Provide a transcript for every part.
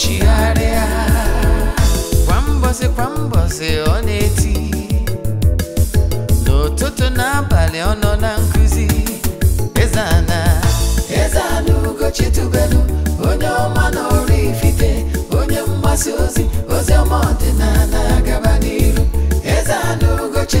ochigharịa kwa mbọsị kwa mbọsị ọ na-eti n'ụtụtụ n'abalị ọ nọ na nkụzi Eze-Ana Eze-Ana Ugochi onye ọma na ifite. onye mgbasa ozi ozi ọma ọdịnala gaba n'iru Eze-Ana Ugochi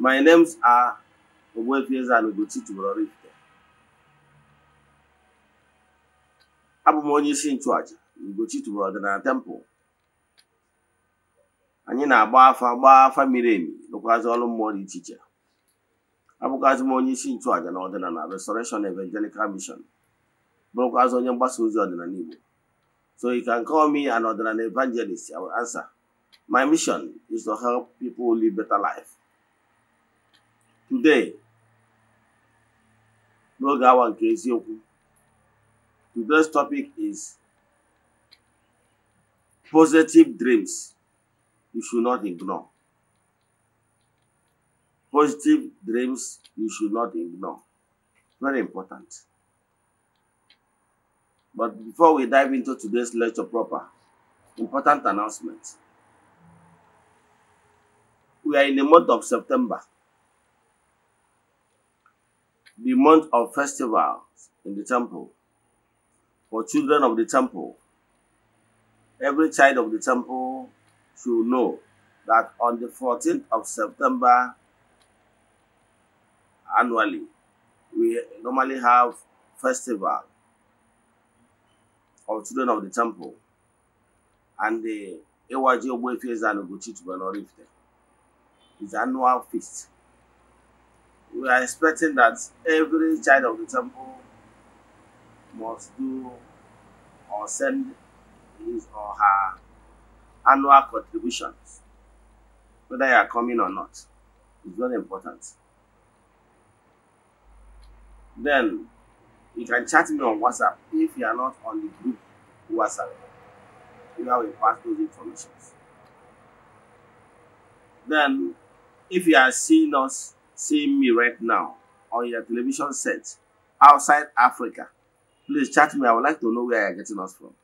My names are Ogbuefieze and Tubelu Oraifite. Abụ m onye isi nchụaja Ugochi Tubelu Ọdịnala Temple. Anyị na-agba afa gbaa afa miri emi lụkwazị ọrụ mmụọ dị iche iche. Abụkwazị m onye isi nchụaja na ọdịnala Restoration Evangelical Mission bụrụkwazị onye mgbasa ozi ọdịnala Igbo. So you can call me an ọdịnala evangelist, I will answer. My mission is to help people live better life. today n'oge awa nke eziokwu today's topic is positive dreams you should not ignore positive dreams you should not ignore very important but before we dive into today's lecture proper important announcement we are in the month of september the month of festivals in the temple for children of the temple. Every child of the temple should know that on the 14th of September annually, we normally have festival of children of the temple and the Ewaji Obwe Fiesta and Ogochi Tubanorifte. It's annual feast we are expecting that every child of the temple must do or send his or her annual contributions, whether you are coming or not. It's very important. Then you can chat me on WhatsApp if you are not on the group WhatsApp. You know, we pass those informations. Then, if you are seeing us seeing me right now on your television set outside Africa, please chat me. I would like to know where you're getting us from.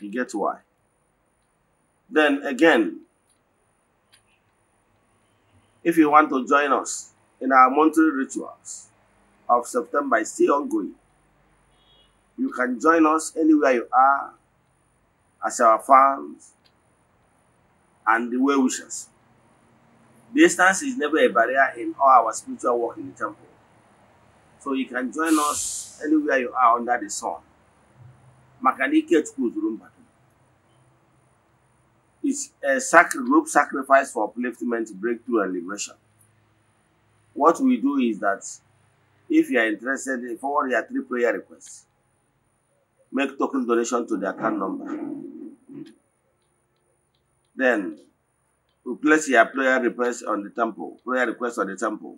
You get why. Then again, if you want to join us in our monthly rituals of September, still ongoing, you can join us anywhere you are as our fans and the well wishers. Distance is never a barrier in all our spiritual work in the temple. So you can join us anywhere you are under the sun. Makanike It's a sacred group sacrifice for upliftment, breakthrough, and liberation. What we do is that if you are interested, forward your three prayer requests. Make token donation to the account number. Then to place your prayer request on the temple, prayer request on the temple,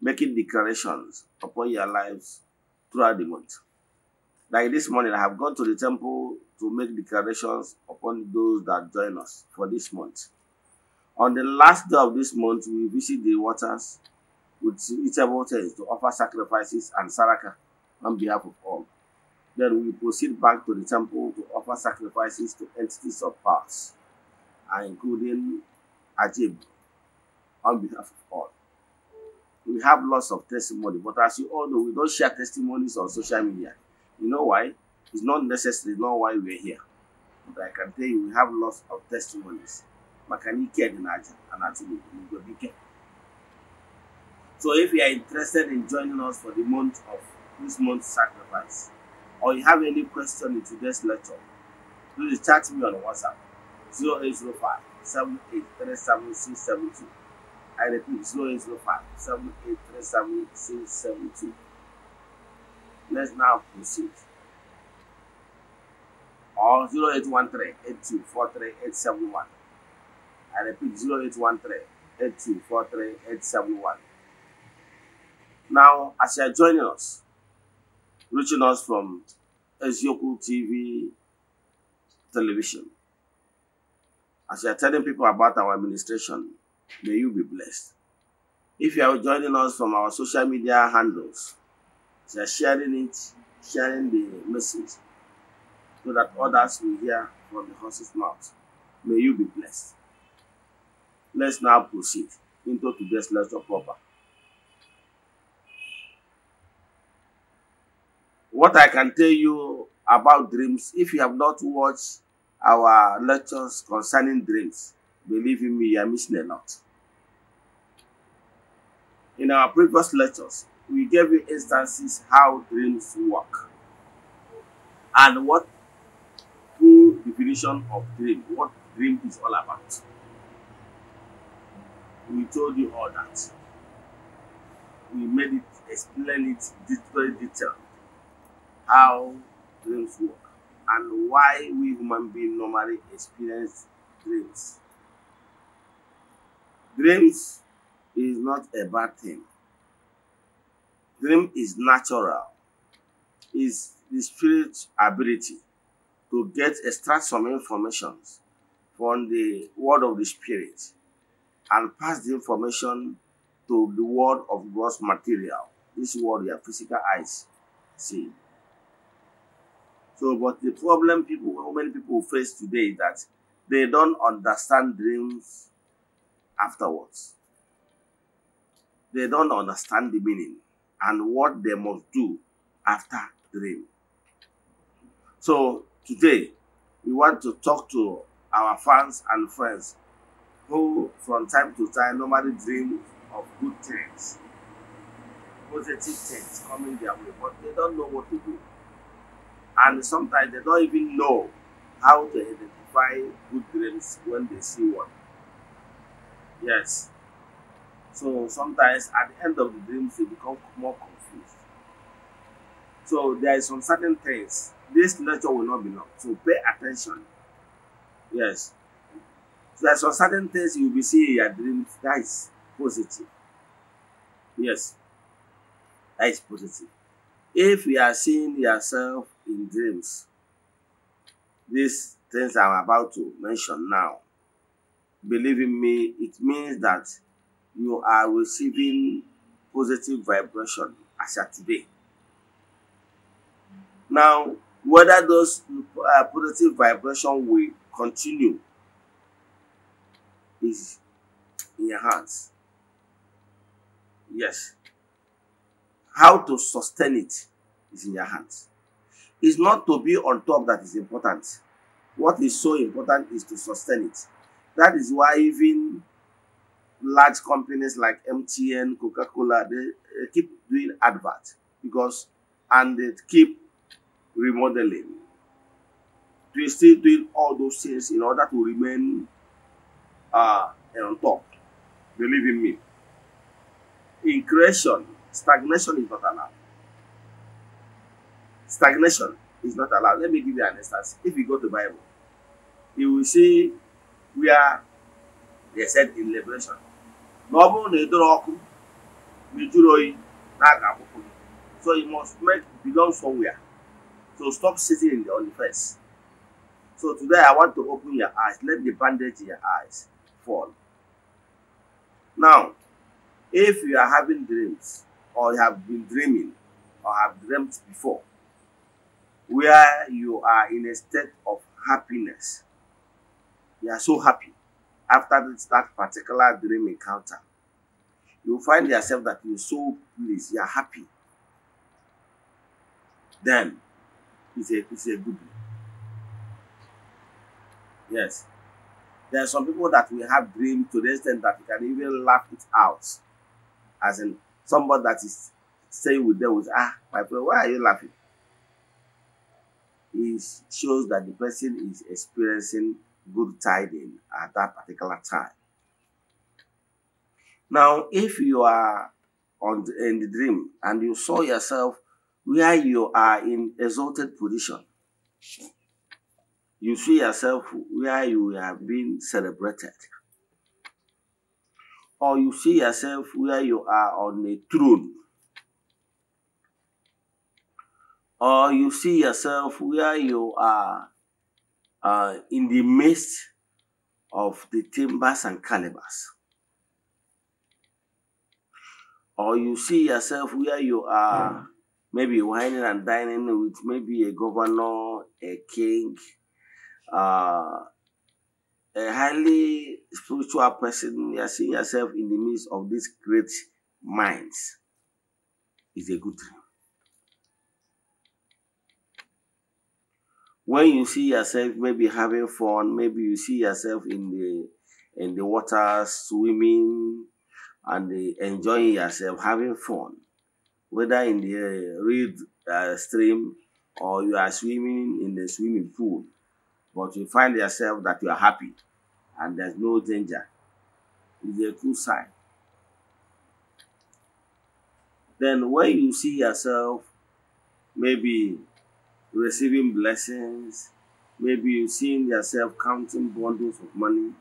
making declarations upon your lives throughout the month. Like this morning, I have gone to the temple to make declarations upon those that join us for this month. On the last day of this month, we visit the waters with eatable things to offer sacrifices and saraka on behalf of all. Then we proceed back to the temple to offer sacrifices to entities of past, including Ajib on behalf of all. We have lots of testimony, but as you all know, we don't share testimonies on social media. You know why? It's not necessary, not why we're here. But I can tell you, we have lots of testimonies. Makanike and Ajib So if you are interested in joining us for the month of this month's sacrifice, or you have any question in today's lecture, please chat me on WhatsApp 0805 7837672. I repeat 0805 7837672. Let's now proceed. Or 0813 8243871. I repeat 0813 8243871. Now, as you are joining us, reaching us from Ezioku TV television. As you are telling people about our administration, may you be blessed. If you are joining us from our social media handles, you are sharing it, sharing the message, so that others will hear from the horse's mouth. May you be blessed. Let's now proceed into today's lesson proper. What I can tell you about dreams, if you have not watched our lectures concerning dreams. Believe in me, you are missing a lot. In our previous lectures, we gave you instances how dreams work and what true definition of dream, what dream is all about. We told you all that. We made it explain it very detailed how dreams work. and why we human beings normally experience dreams. Dreams is not a bad thing. Dream is natural. Is the spirit ability to get extract some information from the word of the spirit and pass the information to the world of God's material. This world your physical eyes see. So, but the problem people, how many people face today is that they don't understand dreams afterwards. They don't understand the meaning and what they must do after dream. So today, we want to talk to our fans and friends who, from time to time, normally dream of good things, positive things coming their way, but they don't know what to do. And sometimes they don't even know how to identify good dreams when they see one. Yes. So sometimes at the end of the dreams, they become more confused. So there is some certain things. This lecture will not be long. So pay attention. Yes. So there are some certain things you will be seeing in your dreams. That is positive. Yes. That is positive. If you are seeing yourself in dreams. These things I'm about to mention now, believe in me, it means that you are receiving positive vibration as at today. Now, whether those uh, positive vibration will continue is in your hands. Yes. How to sustain it is in your hands. It's not to be on top that is important. What is so important is to sustain it. That is why even large companies like MTN, Coca-Cola, they keep doing advert because and they keep remodeling. They still doing all those things in order to remain uh, on top. Believe in me. In creation, stagnation is not allowed. Stagnation is not allowed. Let me give you an instance. If you go to Bible, you will see where they said in Liberation, na ọ bụrụ na ị dọrọ ọkụ ma ị jụrụ so you must make belong somewhere so stop sitting in the on the fence so today I want to open your eyes let the bandage in your eyes fall now if you are having dreams or you have been dreaming or have dreamt before where you are in a state of happiness. You are so happy after that particular dream encounter. You find yourself that you're so pleased, you're happy. Then it's a, it's a good dream. Yes. There are some people that we have dreams to the extent that you can even laugh it out. As in, somebody that is saying with them, with, ah, my friend, why are you laughing? is shows that the person is experiencing good tidings at that particular time. Now, if you are on the, in the dream and you saw yourself where you are in exalted position, you see yourself where you are being celebrated, or you see yourself where you are on a throne or you see yourself where you are uh, in the midst of the timbers and calibers. Or you see yourself where you are maybe whining and dining with maybe a governor, a king, uh, a highly spiritual person. You are seeing yourself in the midst of these great minds. Is a good thing. when you see yourself maybe having fun, maybe you see yourself in the in the water swimming and enjoying yourself, having fun, whether in the uh, reed uh, stream or you are swimming in the swimming pool, but you find yourself that you are happy and there's no danger. It's a good sign. Then when you see yourself maybe receiving blessings. Maybe you've seen yourself counting bundles of money.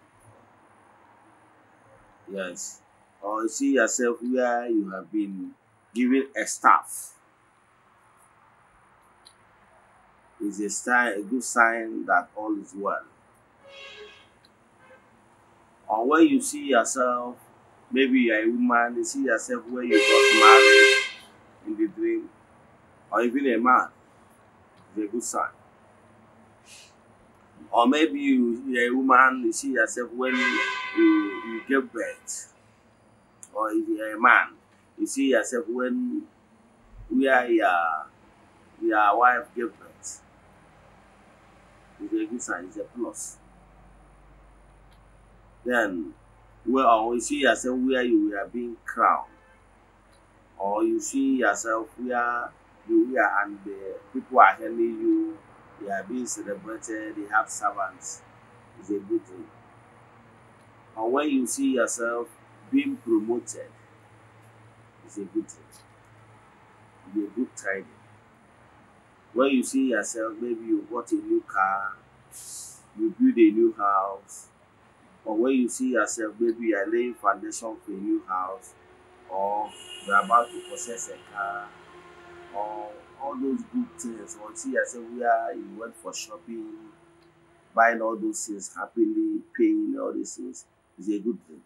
Yes. Or you see yourself where you have been given a staff. It's a, sign, a good sign that all is well. Or where you see yourself, maybe you're a woman, you see yourself where you got married in the dream, or even a man A good sign, Or maybe you, you're a woman, you see yourself when you, you, give birth. Or if you're a man, you see yourself when we are your, your wife give birth. It's a good sign, it's a plus. Then, well, you see yourself where you are being crowned. Or you see yourself where Korea and the people are helping you, they are being celebrated, they have servants. It's a good thing. Or when you see yourself being promoted, it's a good thing. It's a good tidings. When you see yourself, maybe you bought a new car, you build a new house, or when you see yourself, maybe you are laying foundation for a new house, or you are about to possess a car. Or all those good things. Until I said we are you went for shopping, buying all those things happily, paying all these things is a good thing.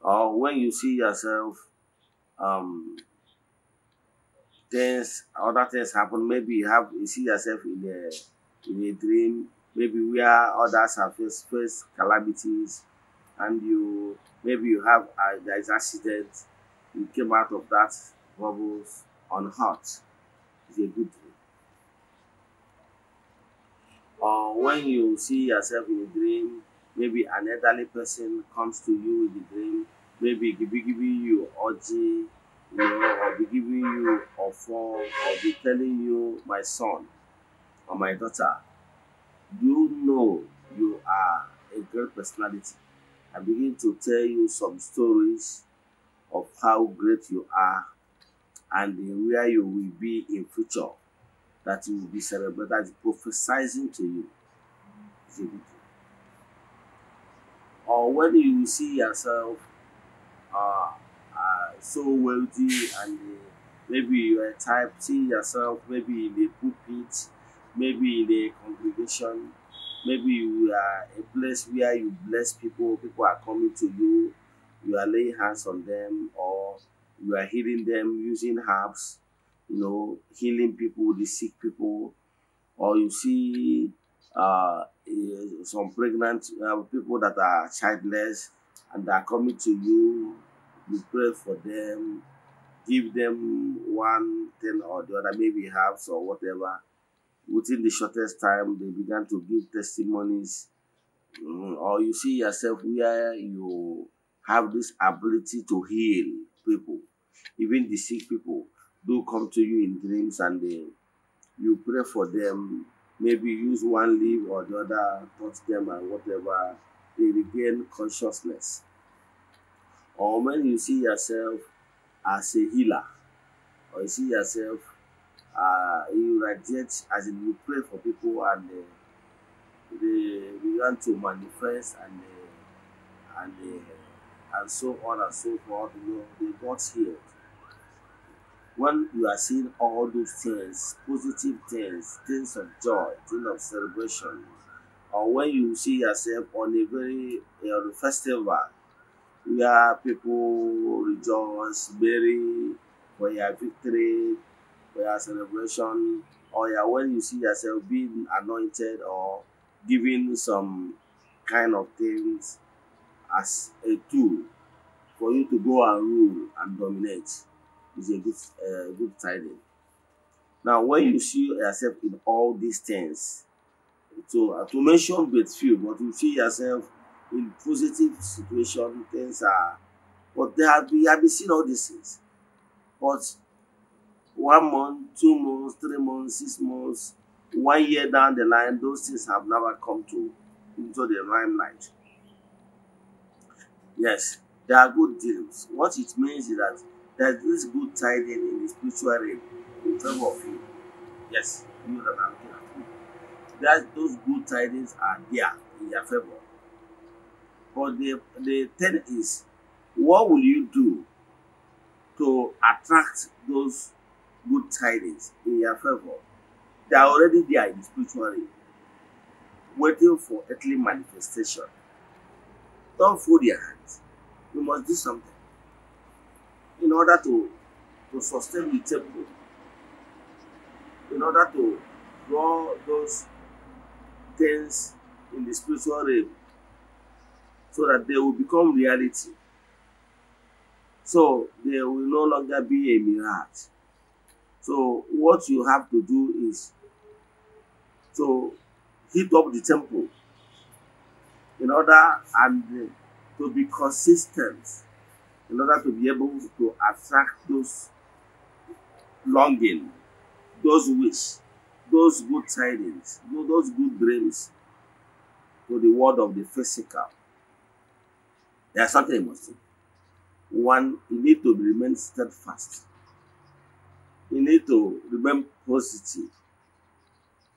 Or when you see yourself, um, things, other things happen. Maybe you have you see yourself in a in a dream. Maybe we are others have faced, faced calamities, and you maybe you have uh, there is accident You came out of that bubbles unhurt is a good thing. Uh, or when you see yourself in a dream, maybe an elderly person comes to you in the dream, maybe be giving you orgy, you know, or be giving you a fall, or be telling you, my son or my daughter, you know you are a great personality. I begin to tell you some stories of how great you are and where you will be in future that you will be celebrated that is prophesizing to you or when you see yourself uh, uh, so wealthy and uh, maybe you are type seeing yourself maybe in a pulpit maybe in a congregation maybe you are a place where you bless people people are coming to you you are laying hands on them or you are healing them using herbs, you know, healing people, the sick people, or you see uh, eh, some pregnant uh, people that are childless and they are coming to you, you pray for them, give them one thing or the other, maybe herbs or whatever. Within the shortest time, they began to give testimonies. Mm, or you see yourself where you have this ability to heal people, even the sick people do come to you in dreams and they, you pray for them. Maybe use one leaf or the other, touch them and whatever, they regain consciousness. Or when you see yourself as a healer, or you see yourself, uh, you radiate as in you pray for people and uh, they, begin to manifest and uh, and uh, and so on and so forth, you know, they got healed. When you are seeing all those things, positive things, things of joy, things of celebration, or when you see yourself on a very you know, festival where people rejoice, merry, where you have victory, where you have celebration, or yeah, when you see yourself being anointed or giving some kind of things as a tool for you to go and rule and dominate is a good uh, good tidings. Now, when you see yourself in all these things, so uh, to mention but few, but you see yourself in positive situation, things are. But there have we have been seeing all these things. But one month, two months, three months, six months, one year down the line, those things have never come to into the limelight. Yes, there are good deals. What it means is that there's this good tidings in the spiritual realm in favor of you. Yes, you know that I'm talking That those good tidings are there in your favor. But the the thing is, what will you do to attract those good tidings in your favor? They are already there in the spiritual realm, waiting for earthly manifestation. Don't fold your hands. You must do something in order to, to sustain the temple, in order to draw those things in the spiritual realm so that they will become reality. So they will no longer be a mirage. So what you have to do is to heat up the temple in order and uh, to be consistent, in order to be able to attract those longing, those wish, those good tidings, those good dreams to the world of the physical. There's something you must do. One, you need to remain steadfast. You need to remain positive.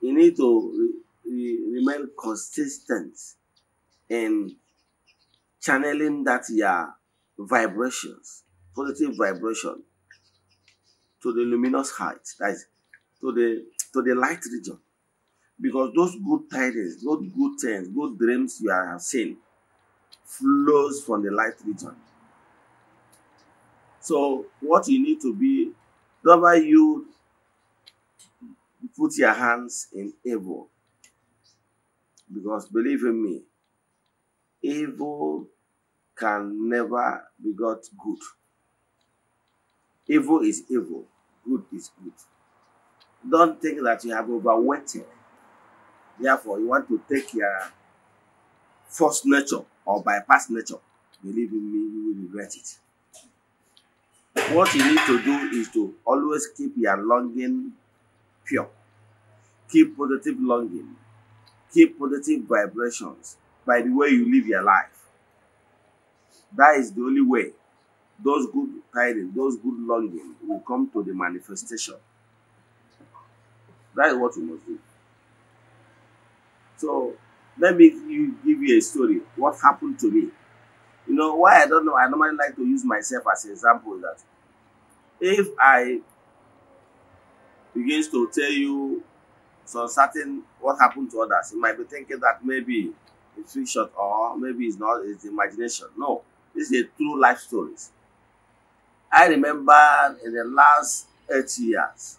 You need to re re remain consistent in channeling that your vibrations, positive vibration to the luminous height, that is to the to the light region. Because those good tidings, those good things, good dreams you are seeing flows from the light region. So what you need to be, whenever you put your hands in evil, because believe in me, evil can never be got good. Evil is evil, good is good. Don't think that you have overweighted. Therefore, you want to take your false nature or bypass nature. Believe in me, you will regret it. What you need to do is to always keep your longing pure. Keep positive longing. Keep positive vibrations by the way you live your life. That is the only way those good tidings, those good longings will come to the manifestation. That is what you must do. So let me give you a story. What happened to me? You know why I don't know. I normally like to use myself as an example that if I begins to tell you some certain what happened to others, you might be thinking that maybe a fiction or maybe it's not it's imagination no this is a true life stories i remember in the last eight years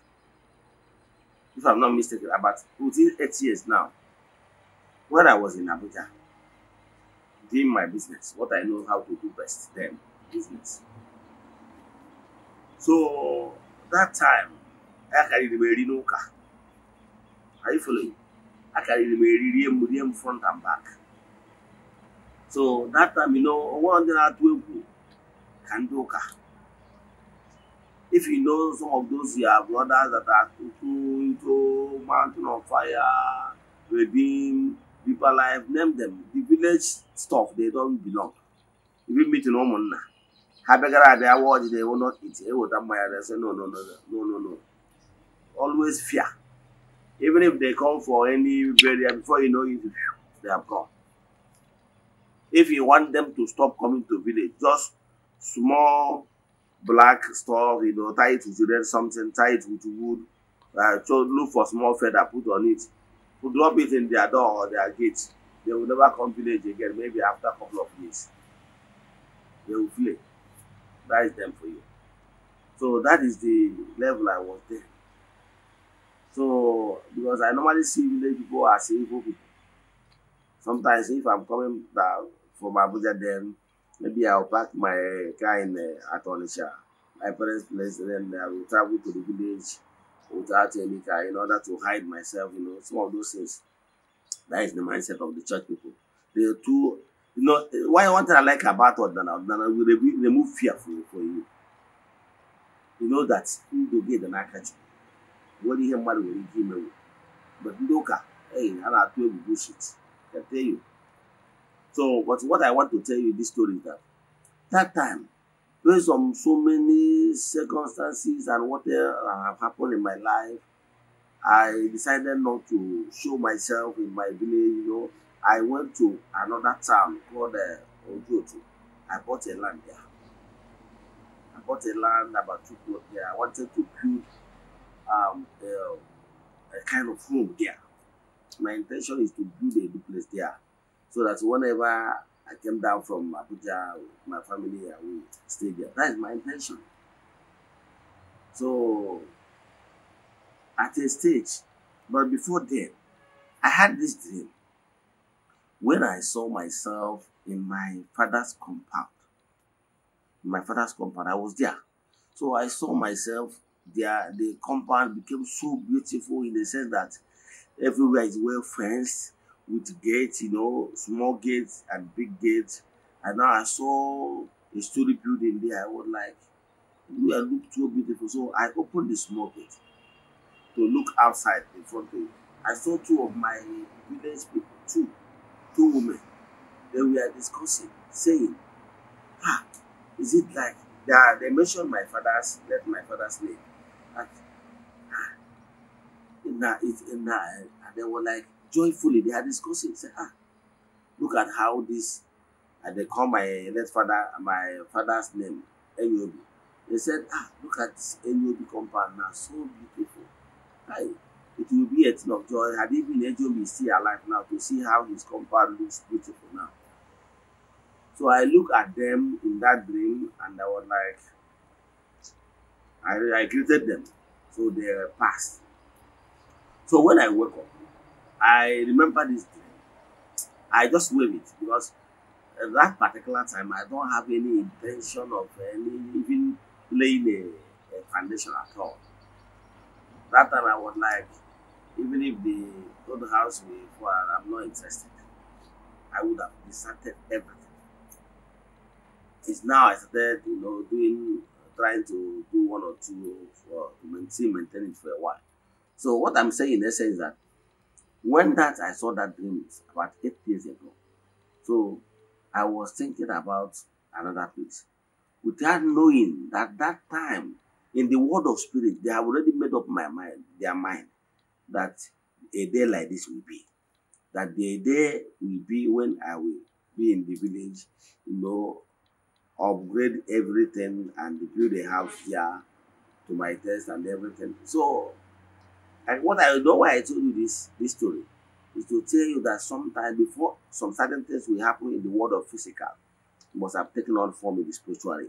if i'm not mistaken about within eight years now when i was in abuja doing my business what i know how to do best then business so that time i carried my car. are you following i carried my rinoka front and back So that time, you know, one day that we can do car. If you know some of those your brothers that are into mountain of fire, redeem, people alive, name them. The village stuff, they don't belong. If you meet in Omona, ha begara abịa awa ọjị na-ewo not eat eweta mmanya na say no no no no no no always fear even if they come for any burial before you know it they have gone if you want them to stop coming to village just small black stuff you know tie it with red something tie it with wood uh, so look for small feather put on it put drop it in their door or their gate they will never come village again maybe after a couple of years they will flee. that is them for you so that is the level i was there so because i normally see village people as evil people sometimes if i'm coming down from Abuja then. Maybe I'll park my car in uh, at my parents' place, and then I uh, will travel to the village without any car in order to hide myself, you know, some of those things. That is the mindset of the church people. They are too, you know, why one thing I like about Odana, Odana will remove fear for you. For you. you know that do get the n'aka What nwere ihe mmadụ will give imewu but ndị ụka ei ha na-atụ egwu bushit ete you So, but what I want to tell you this story is that that time, based on so many circumstances and what have happened in my life, I decided not to show myself in my village. You know, I went to another town called uh, Ojoto. I bought a land there. I bought a land about two blocks there. I wanted to build um, a, a kind of home there. My intention is to build a duplex there. so that whenever I came down from Abuja with my family, I will stay there. That is my intention. So, at a stage, but before then, I had this dream when I saw myself in my father's compound. In my father's compound, I was there. So I saw myself there. The compound became so beautiful in the sense that everywhere is well fenced with gates, you know, small gates and big gates. And now I saw a story building there. I was like, yeah, look so beautiful. So I opened the small gate to look outside in front of it. I saw two of my village people, two, two women. They were discussing, saying, ah, is it like, they, they mentioned my father's, let my father's name. Like, ah, nah, it's, nah, and they were like, joyfully they are discussing. Say, ah, look at how this. And uh, they call my late father, my father's name, Enyobi. They said, ah, look at this Enyobi compound now, so beautiful. Hi, it will be a thing of joy. Had even Enyobi see alive now to see how his compound looks beautiful now. So I look at them in that dream and I was like, I, I greeted them. So they passed. So when I woke up, I remember this day. I just wave it because at that particular time I don't have any intention of any even laying a, a foundation at all. That time I was like, even if the don't house me for I'm not interested, I would have deserted everything. It's now I started, you know, doing trying to do one or two for to maintain maintain it for a while. So what I'm saying in essence is that When that I saw that dream is about eight days ago. So I was thinking about another place. Without knowing that that time in the world of spirit, they have already made up my mind, their mind, that a day like this will be. That the day will be when I will be in the village, you know, upgrade everything and build a house here to my test and everything. So And what I know why I told you this this story is to tell you that sometimes before some certain things will happen in the world of physical, it must have taken on form in the spiritual realm.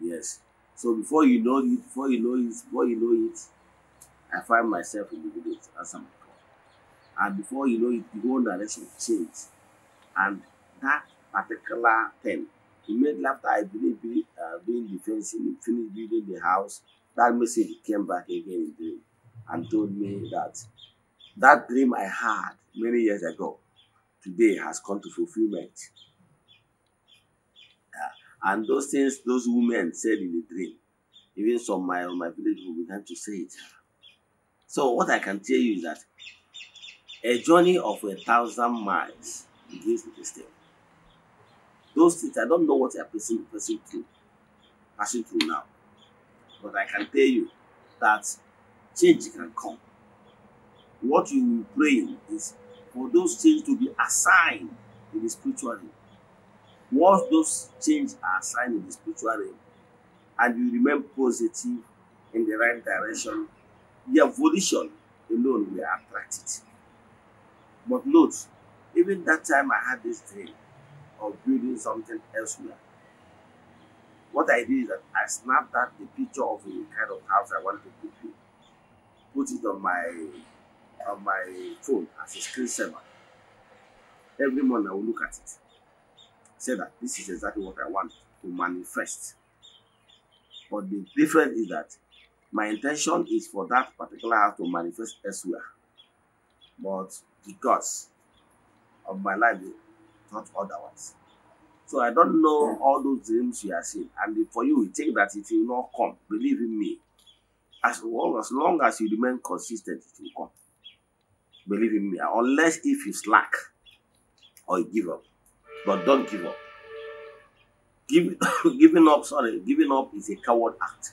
Yes. So before you know it, before you know it, before you know it, I find myself in the village as I'm And before you know it, the whole direction changed. And that particular thing, he made laughter, I believe, uh, being defensive, finished building the house, that message came back again in dream and told me that that dream I had many years ago today has come to fulfillment. and those things those women said in the dream, even some of my, my village who began to say it. So what I can tell you is that a journey of a thousand miles begins with a step. Those things, I don't know what I'm passing through, passing through now. but I can tell you that change can come. What you will pray is for those change to be assigned in the spiritual realm. Once those change are assigned in the spiritual realm, and you remain positive in the right direction, the evolution alone will attract it. But note, even that time I had this dream of building something elsewhere. What I did is that I snapped that the picture of the kind of house I wanted to build, put it on my on my phone as a screensaver. Every morning I will look at it, say that this is exactly what I want to manifest. But the difference is that my intention is for that particular house to manifest elsewhere. But the gods of my life thought otherwise. So I don't know all those dreams you are seeing. And for you, we take that it will not come. Believe in me. As long as, long as you remain consistent, it will come. Believe in me. Unless if you slack or you give up. But don't give up. Give, giving up, sorry, giving up is a coward act.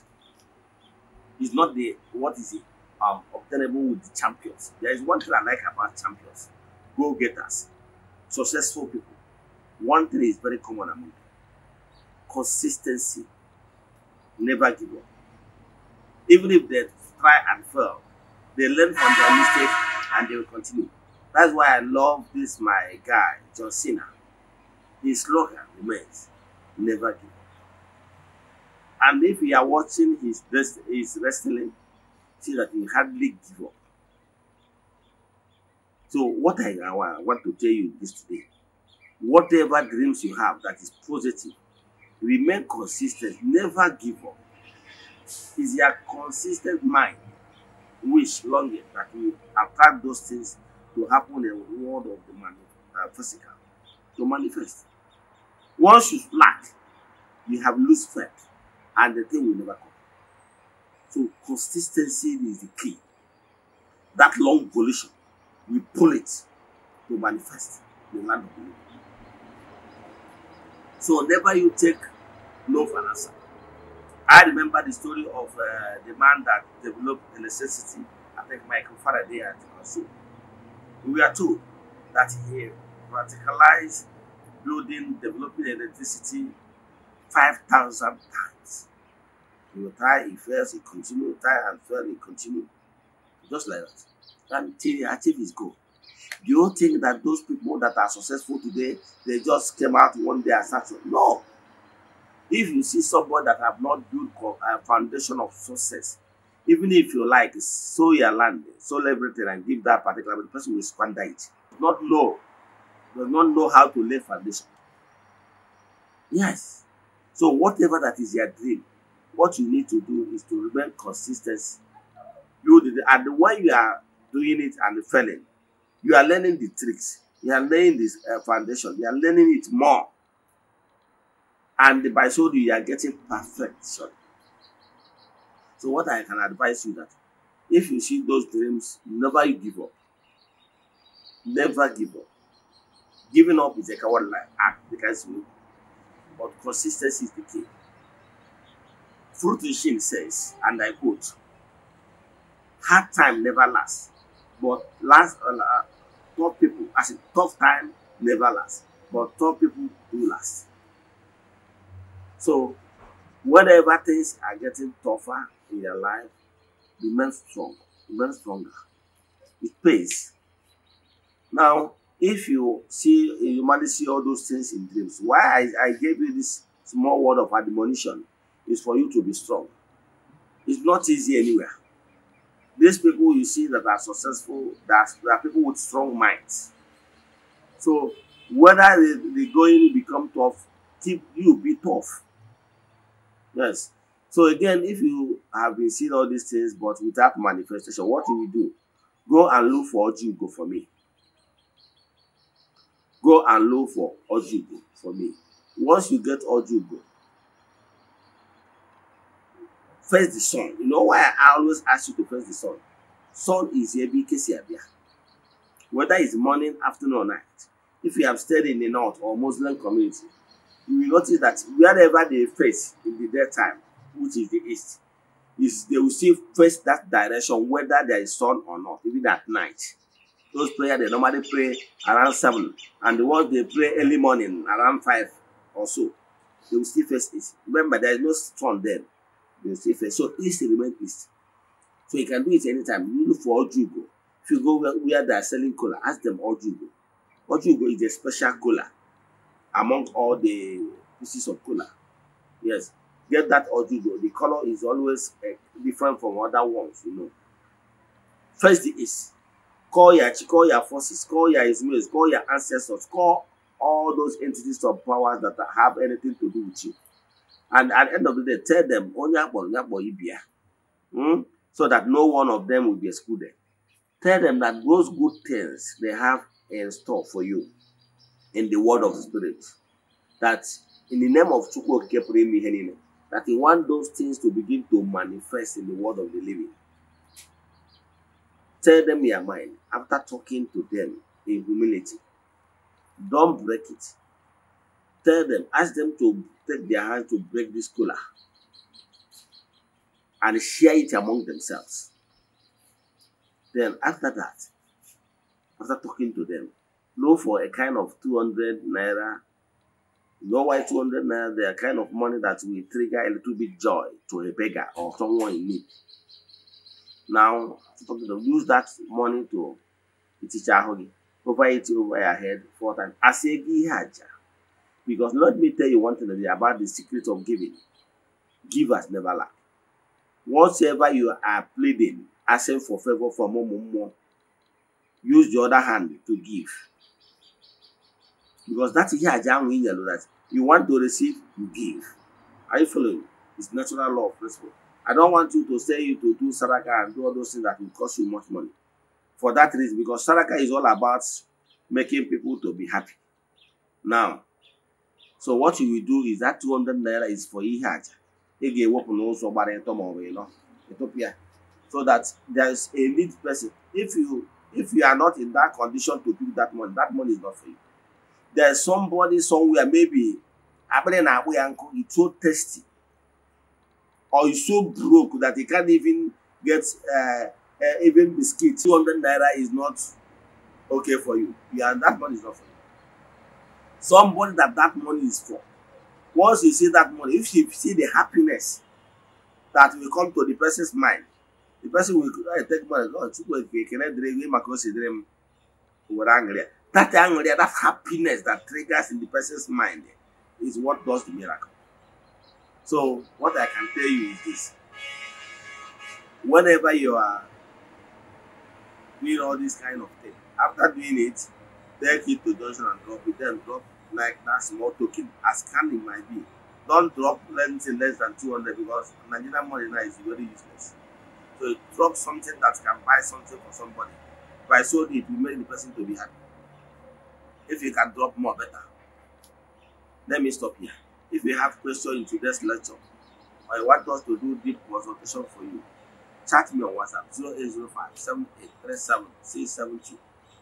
It's not the what is it um, obtainable with the champions. There is one thing I like about champions, go-getters, successful people One thing is very common among them. Consistency. Never give up. Even if they try and fail, they learn from their mistakes and they will continue. That's why I love this my guy, John Cena. His slogan remains, never give up. And if you are watching his, best, his wrestling, see that he hardly give up. So what I, I want to tell you this today, whatever dreams you have that is positive, remain consistent, never give up. It's your consistent mind, wish, longing that will attract those things to happen in the world of the man, uh, physical, to manifest. Once you lack, you have loose faith, and the thing will never come. So consistency is the key. That long volition, we pull it to manifest the land of the living. So whenever you take no for an answer. I remember the story of uh, the man that developed electricity, I think Michael Faraday at Kosovo. We are told that he radicalized building, developing electricity 5,000 times. He will try, he fails, he continues, He try and fail, he continues. Just like that. Until he achieves his goal. You don't think that those people that are successful today, they just came out one day and started. No. If you see somebody that have not built a uh, foundation of success, even if you like, sow your land, sow everything and give that particular the person will squander it. Not know, does not know how to lay foundation. Yes. So whatever that is your dream, what you need to do is to remain consistency. You and when you are doing it and failing, You are learning the tricks. You are laying this uh, foundation. You are learning it more. And by so you are getting perfection. So what I can advise you that if you see those dreams, never give up. Never give up. Giving up is a coward act because you but consistency is the key. Fruition says, and I quote, hard time never lasts, but last uh, tough people, as a tough time never lasts, but tough people do last. So, whatever things are getting tougher in your life, remain strong, remain stronger. It pays. Now, if you see, you normally see all those things in dreams. Why I, I gave you this small word of admonition is for you to be strong. It's not easy anywhere. These people you see that are successful, that are people with strong minds. So whether they, they going become tough, keep you be tough. Yes. So again, if you have been seeing all these things but without manifestation, what do you do? Go and look for Ojugo for me. Go and look for Ojugo for me. Once you get Ojugo, first the sun. You know why I always ask you to first the sun. Sun is Ebi Kesiabia. Whether it's morning, afternoon, or night. If you have stayed in the north or Muslim community, you will notice that wherever they face in the daytime, which is the east, is they will still face that direction whether there is sun or not, even at night. Those prayer they normally pray around seven, and the ones they pray early morning around five or so, they will still face it. Remember, there is no sun then. They say first shot east remain So you can do it anytime. You look for Ojugo. If you go where, where they are selling cola, ask them Ojugo. Ojugo is a special cola among all the pieces of cola. Yes, get that Ojugo. The color is always uh, different from other ones, you know. First is call your call your forces, call your Ismails, call your ancestors, call all those entities of powers that have anything to do with you. And at the end of the day, tell them, Onyakbo, oh, Onyakbo, Ibia. Hmm? So that no one of them will be excluded. Tell them that those good things they have in store for you in the word of the Spirit. That in the name of Chukwu Kepremi Henine, that he want those things to begin to manifest in the world of the living. Tell them your mind after talking to them in humility. Don't break it. Tell them, ask them to take their hands to break this cooler and share it among themselves. Then after that, after talking to them, know for a kind of 200 naira. Know why 200 naira, they are kind of money that will trigger a little bit joy to a beggar or someone in need. Now, use that money to iticha ahụ Provide it over your head four times. Asegi haja. Because let me tell you one thing today about the secret of giving. Givers never lack. Whatever you are pleading, asking for favor from more, more, more, use the other hand to give. Because that's here in yellow that you want to receive, you give. Are you following? It's natural law principle. I don't want you to say you to do Saraka and do all those things that will cost you much money. For that reason, because Saraka is all about making people to be happy. Now, so what you will do is that 200 naira is for ihe aja ị ga-ewepụ n'ụzọ gbara ịtọ maọbụ ịnọ ịtụpịa so that there is a need person if you if you are not in that condition to give that money that money is not for you there is somebody somewhere maybe akpịrị na-akpụ ya nkụ it's so tasty or it's so broke that he can't even get uh, uh, even biscuit 200 naira is not okay for you yeah that money is not for you somebody that that money is for. Once you see that money, if you see the happiness that will come to the person's mind, the person will oh, I take money. God, oh, it's good. Can I drink? We must consider him. We're angry. That anger, that happiness that triggers in the person's mind is what does the miracle. So what I can tell you is this. Whenever you are doing all this kind of thing, after doing it, take it to Johnson and drop it, then drop like that small token, as can might be. Don't drop anything less than two hundred because Nigerian money now is very useless. So drop something that can buy something for somebody. By so it will make the person to be happy. If you can drop more, better. Let me stop here. If you have questions in today's lecture, or you want us to do deep consultation for you, chat me on WhatsApp zero zero eight eight five seven seven three six seven two.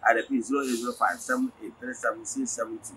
I repeat zero zero eight eight five seven seven three six seven two.